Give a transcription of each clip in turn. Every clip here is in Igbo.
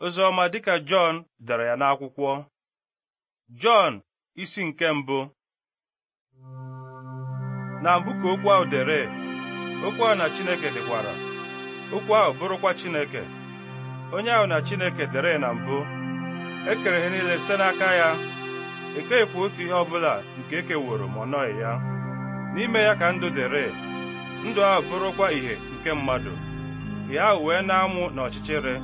Ozioma, dịka Jọn dere ya n'akwụkwọ Jọn isi nke mbụ na mbụ ka okwu ahụ dere okwu ahụ na Chineke dịkwara okwu ahụ bụrụkwa Chineke onye ahụ na Chineke dere na mbụ ekere ihe niile site n'aka ya ekeghịkwa otu ihe ọbụla nke ekeworo ma ọ nọghị ya n'ime ya ka ndụ dere ndụ ahụ bụrụkwa ìhè nke mmadụ ihe ahụ wee na-amụ n'ọchịchịrị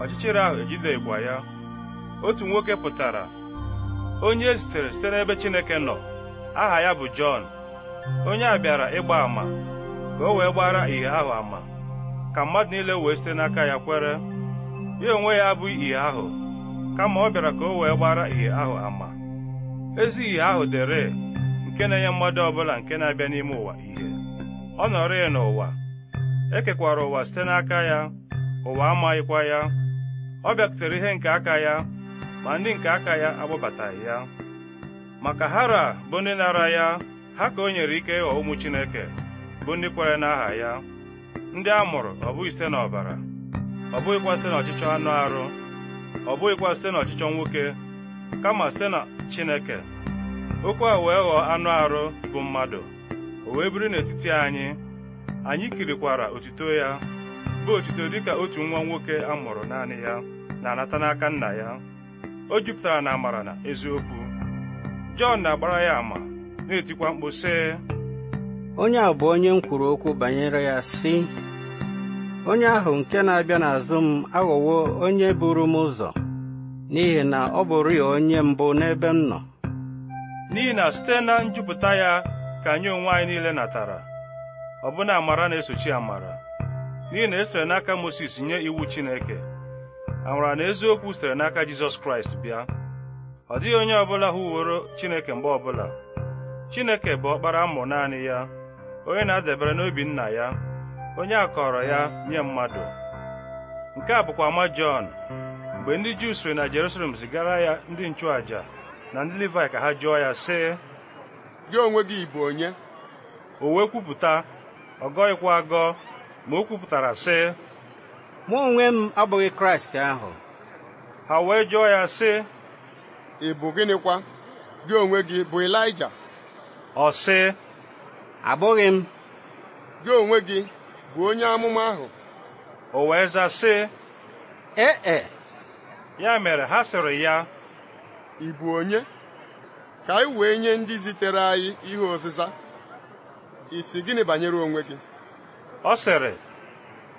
ọchịchịrị ahụ ejide ịgba ya otu nwoke pụtara onye e zitere site n'ebe Chineke nọ aha ya bụ Jọn onye a bịara ịgba àmà ka o wee gbara ìhè ahụ àmà ka mmadụ niile wee site n'aka ya kwere ya onwe ya abụghị ìhè ahụ kama ọ bịara ka o wee gbara ìhè ahụ àmà ezi ìhè ahụ dere nke na-enye mmadụ ọbụla nke na-abịa n'ime ụwa ìhè ọ nọrọ ya n'ụwa ekekwara ụwa site n'aka ya ụwa amaghịkwa ya ọ bịatụtara ihe nke aka ya ma ndị nke aka ya agbabataghị ya maka hara bụ ndị nara ya ha ka o nyere ike ịghọ ụmụ chineke bụ ndị kwere n'aha ya ndị a mụrụ ọ bụghị site n'ọbara ọ bụghịkwa site n'ọchịchọ anụ arụ ọ bụghịkwa site n'ọchịchọ nwoke kama site na chineke okwu a wee ghọọ anụ arụ bụ mmadụ o wee biri n'etiti anyị anyị kirikwara otuto ya bụ otuto dịka otu nwa nwoke a mụrụ naanị ya na-anata n'aka nna ya o jupụtara na amara na eziokwu Jọn na-agbara ya ama na-etikwa mkpu sị onye a bụ onye m kwuru okwu banyere ya sị onye ahụ nke na-abịa n'azụ m aghọwo onye buru m ụzọ n'ihi na ọ bụrụ ya onye mbụ n'ebe m nọ n'ihi na site na njupụta ya ka anyị onwe anyị niile natara ọbụna amara na-esochi amara n'ihi na esere n'aka moses nye iwu Chineke amara na eziokwu sitere n'aka Jizọs Kraịst bịa ọ dịghị onye ọbụla hụworo Chineke mgbe ọbụla Chineke bụ ọkpara mmụọ naanị ya onye na-adabere n'obi nna ya onye a ya nye mmadụ nke a bụkwa ama Jọn mgbe ndị Juu siri na Jerusalem zigara ya ndị nchụàja na ndị Livayị ka ha jụọ ya sị gị onwe gị bụ onye o wee kwupụta ọ gọghịkwa agọ ma o kwupụtara sị mụ onwe m abụghị kraịst ahụ ha wee jụọ ya sị ị bụ gịnịkwa gị onwe gị bụ Ịlaịja ọ sị abụghị m gị onwe gị bụ onye amụma ahụ o wee za sị ee e ya mere ha sịrị ya ị bụ onye ka anyị wee nye ndị zitere anyị ihe ọzịza isi gịnị banyere onwe gị ọ sịrị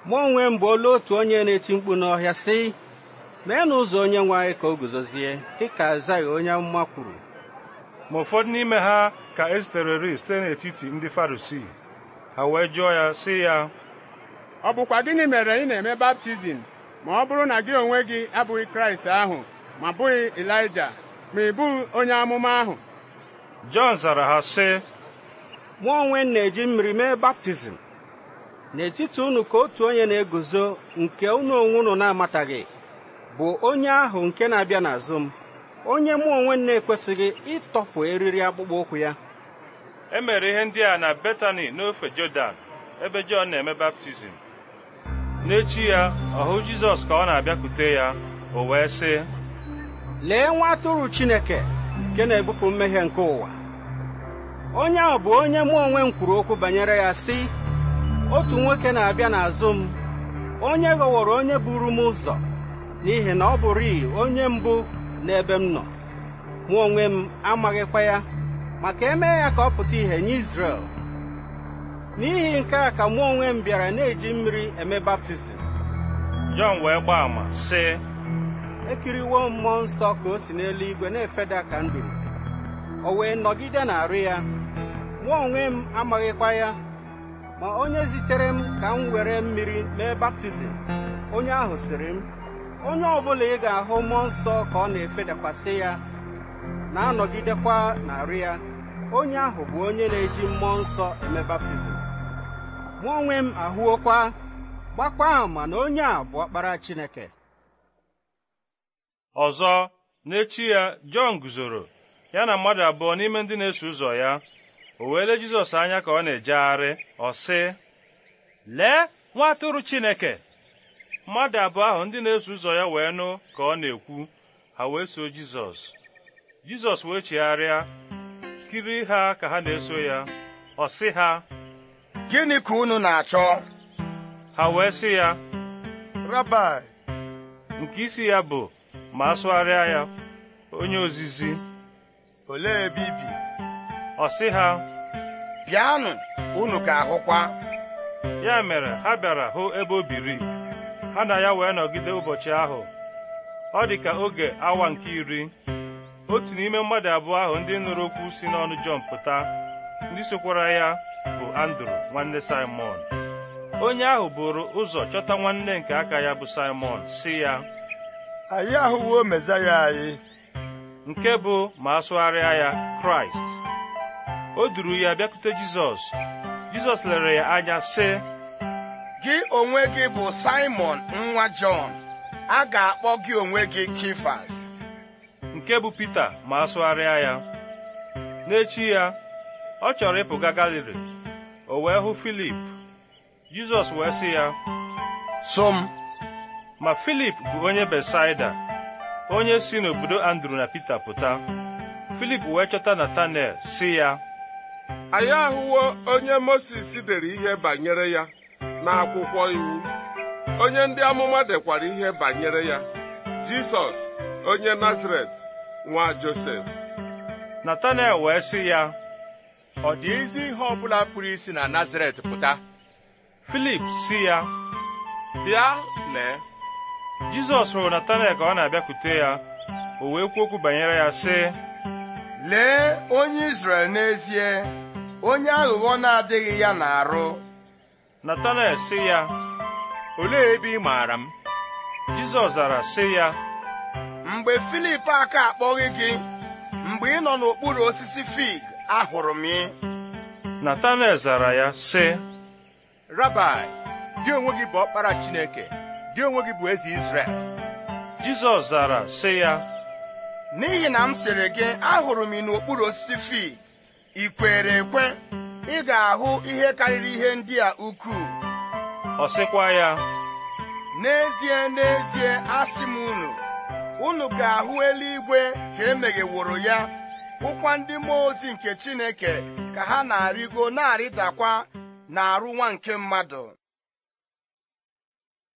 mụ onwe m bụ olu otu onye na-eti mkpu n'ọhịa sị mee n'ụzọ onye nwe ka o guzozie dịka azaghị onye amụma kwuru ma ụfọdụ n'ime ha ka ezitereri site n'etiti ndị farisii ha wee jụọ ya sị ya ọ bụkwa gịnị mere ị na-eme baptizim ma ọ bụrụ na gị onwe gị abụghị kraịst ahụ ma bụghị elija ma ị bụghị onye amụma ahụ jọn zara ha sị mụ onwe m na-eji mmiri mee baptizim n'etiti unu ka otu onye na-eguzo nke unu onwe unu na-amataghị bụ onye ahụ nke na-abịa n'azụ m onye mụ onwe na-ekwesịghị ịtọpụ eriri akpụkpọ ụkwụ ya e mere ihe ndị a na Betani n'ofe Jọdan ebe Jọn na-eme baptizim n'echi ya ọ hụ Jizọs ka ọ na-abịakwute ya o wee sị lee nwa atụrụ Chineke nke na-ebupụ mmehie nke ụwa onye ahụ bụ onye mụ onwe m kwuru okwu banyere ya sị otu nwoke na-abịa n'azụ m onye ghọworo onye buru m ụzọ n'ihi na ọ bụrịị onye mbụ n'ebe m nọ mụ onwe m amaghịkwa ya maka eme ya ka ọ pụta ìhè nye n'ihi nke a ka mụ onwe m bịara na-eji mmiri eme baptizim Jọn wee gbaa ama sị ekiriwo mmụọ nsọ ka o si n'eluigwe na-efeda ka nduru o wee nọgide na-arụ ya mụ onwe m amaghịkwa ya ma onye zitere m ka m were mmiri mee baptizim onye ahụ sịrị m onye ọbụla ị ga-ahụ mmụọ nsọ ka ọ na-efedakwasị ya na-anọgidekwa narị ya onye ahụ bụ onye na-eji mmụọ nsọ eme baptizim mụ onwe m ahụokwa gbakwa ama na onye a bụ ọkpara Chineke ọzọ n'echi ya Jọn guzoro ya na mmadụ abụọ n'ime ndị na-eso ụzọ ya o weele Jizọs anya ka ọ na-ejegharị ọ sị lee nwa atụrụ Chineke mmadụ abụọ ahụ ndị na-eso ụzọ ya wee nụ ka ọ na-ekwu ha wee so Jizọs Jizọs wee chegharịa kiri ha ka ha na-eso ya ọ sị ha gịnị ka unu na-achọ ha wee sị ya Rabai nke isi ya bụ ma asụgharịa ya onye ozizi olee ebe ibi ọ sị ha bịanụ unu ka ahụkwa ya mere ha bịara hụ ebe o biri ha na ya wee nọgide ụbọchị ahụ ọ dị ka oge awa nke iri otu n'ime mmadụ abụọ ahụ ndị nụrụ okwu si n'ọnụ Jọn pụta ndị sokwara ya bụ Andrew nwanne Simon onye ahụ bụrụ ụzọ chọta nwanne nke aka ya bụ Simon si ya anyị ahụwo Mezaya anyị nke bụ ma asụgharịa ya Kraịst o duru ya bịakute jizọs jizọs lere ya anya sị gị onwe gị bụ simon nwa jọn a ga-akpọ gị onwe gị kifas nke bụ pita ma asụgharịa ya n'echi ya ọ chọrọ ịpụga galili o wee hụ filip jizọs wee sị ya so m ma filip bụ onye besaida onye si n'obodo andrew na pita pụta filip wee chọta natanel sị ya anyị ahụwo onye Mozis dere ihe banyere ya n'akwụkwọ iwu onye ndị amụma dekwara ihe banyere ya Jisọs onye Nazaret nwa Josef Natanel wee sị ya ọ dị ezi ihe ọbụla pụrụ isi na Nazaret pụta Filip si ya bịa lee Jizọs hụrụ Natanel ka ọ na-abịakwute ya o wee kwuo okwu banyere ya sị lee onye Izrel n'ezie onye aghụghọ na-adịghị ya na-arụ Natanel sị ya olee ebe ị maara m Jizọs zara sị ya mgbe Filip aka akpọghị gị mgbe ị nọ n'okpuru osisi fig ahụrụ m ị Natanel zara ya sị Rabai gị onwe gị bụ ọkpara Chineke gị onwe gị bụ eze Izrel Jizọs zara sị ya n'ihi na m sịrị gị ahụrụ m ị n'okpuru osisi fig ị kwere ekwe ị ga-ahụ ihe karịrị ihe ndị a ukwuu ọ sịkwa ya n'ezie n'ezie asị m unu unu ga-ahụ eluigwe ka emegheworo ya hụkwa ndị mmụọ ozi nke Chineke ka ha na-arịgo na-arịdakwa na arụ nwa nke mmadụ